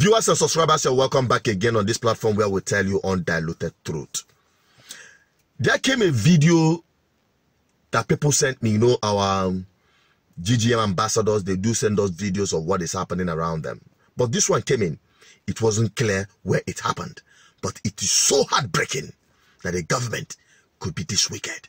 Viewers and subscribers, you're welcome back again on this platform where we tell you undiluted truth. There came a video that people sent me, you know, our um, GGM ambassadors, they do send us videos of what is happening around them. But this one came in. It wasn't clear where it happened. But it is so heartbreaking that the government could be this wicked.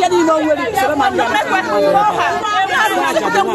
yadi ma wali salama alaikum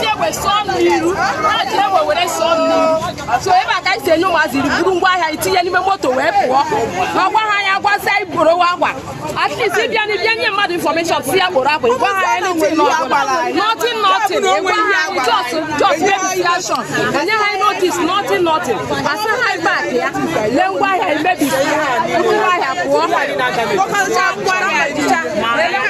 we sọọ mmiri ajie we were sọọ mmiri so ebe a ka anyị si enye ụmụazị buru ngwa itinye n'ime moto wee pụọ ma gwa ha anya gwazi anyị gboro agwa at ịbịa na ịbịa nye mmadụ infọmeshọn si ya gboro agwa ịgwa ha ya na-enwe notin notin enwe ihe anyị jọs jọs mebisikashọn enye ha notis notin notin asa ha baak ya lee ngwa ahịa emebisi pụọ ha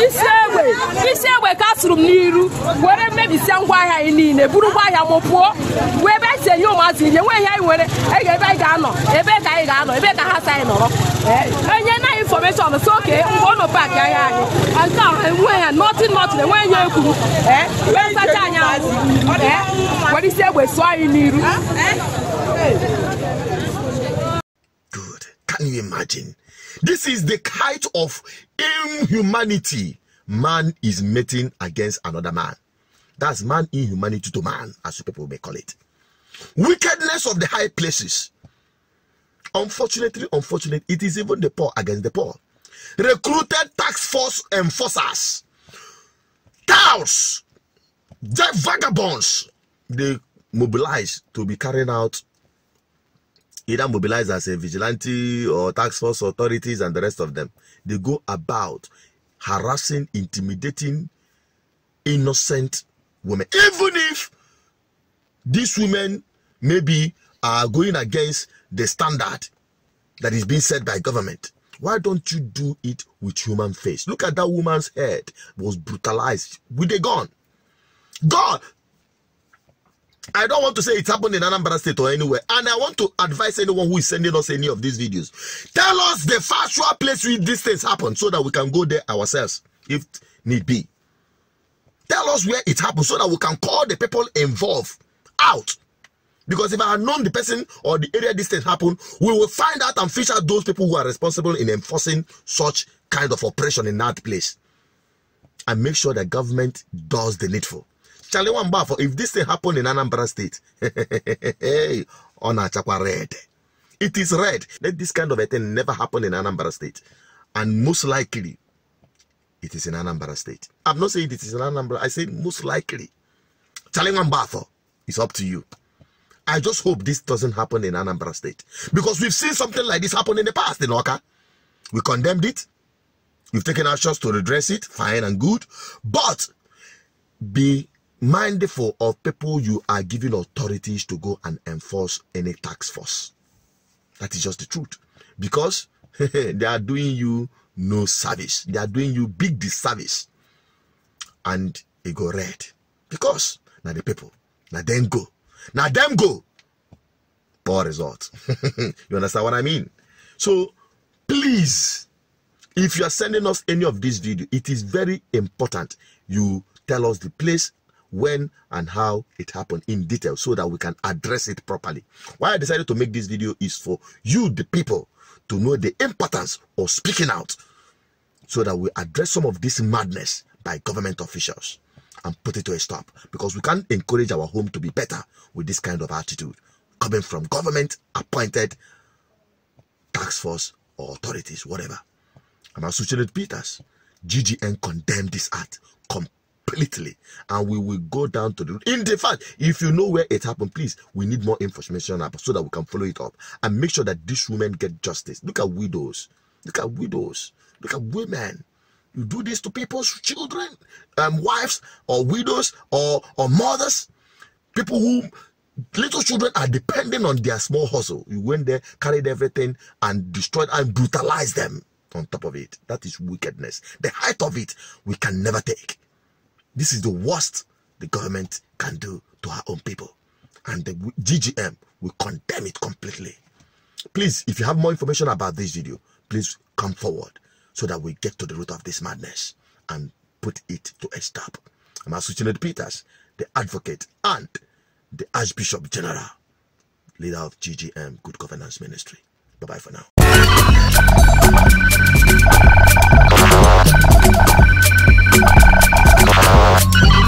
isi egbe isi egbe ka asụrụ m n'iru were mmebisia ngwa ahịa anyị niile buru ngwa ahịa m pụọ wee ebe anyị enye ụmụazị ihe nwe ihe anyị nwere e ebe anyị ga-anọ ebe ka anyị ga-anọ ebe ka ha si anyị nọrọ enye na infọmeshọn so oke mgbe ọ paakị ahịa anyị nke a enwe ya nọtin nọtin enweghị ya ekwuru e, wee sacha anyị ahụ e, were isi egbe sụọ anyị n'iru Can you imagine? This is the kind of inhumanity man is meeting against another man. That's man inhumanity to man, as people may call it. Wickedness of the high places. Unfortunately, unfortunately, it is even the poor against the poor. Recruited tax force enforcers, The vagabonds, they mobilize to be carrying out either mobilize as a vigilante or tax force authorities and the rest of them. They go about harassing, intimidating innocent women. Even if these women maybe are going against the standard that is being set by government. Why don't you do it with human face? Look at that woman's head was brutalized with a gun. God, I don't want to say it happened in Anambra State or anywhere. And I want to advise anyone who is sending us any of these videos. Tell us the factual place where these things happened so that we can go there ourselves if need be. Tell us where it happened so that we can call the people involved out. Because if I had known the person or the area this thing happened, we will find out and fish out those people who are responsible in enforcing such kind of oppression in that place. And make sure that government does the needful. Charlie for if this thing happened in Anambra State, on Achakwa red. It is red. Let this kind of a thing never happen in Anambra State. And most likely, it is in Anambra State. I'm not saying it is in Anambra. I say most likely. Charlie for. it's up to you. I just hope this doesn't happen in Anambra State. Because we've seen something like this happen in the past in Oka. We condemned it. We've taken actions to redress it. Fine and good. But be mindful of people you are giving authorities to go and enforce any tax force. That is just the truth. Because they are doing you no service. They are doing you big disservice. And it go red. Because now the people, now them go. Now them go. Poor result. you understand what I mean? So please, if you are sending us any of this video, it is very important you tell us the place when and how it happened in detail so that we can address it properly. Why I decided to make this video is for you, the people, to know the importance of speaking out so that we address some of this madness by government officials and put it to a stop because we can't encourage our home to be better with this kind of attitude coming from government appointed tax force or authorities, whatever. I'm Associated Peters. GGN condemned this act completely completely and we will go down to the in the fact if you know where it happened please we need more information so that we can follow it up and make sure that these women get justice look at widows look at widows look at women you do this to people's children um, wives or widows or or mothers people who little children are depending on their small hustle you went there carried everything and destroyed and brutalized them on top of it that is wickedness the height of it we can never take this is the worst the government can do to our own people. And the GGM will condemn it completely. Please, if you have more information about this video, please come forward so that we get to the root of this madness and put it to a stop. I'm Asuchinet Peters, the advocate and the Archbishop General, leader of GGM Good Governance Ministry. Bye-bye for now. Thank you.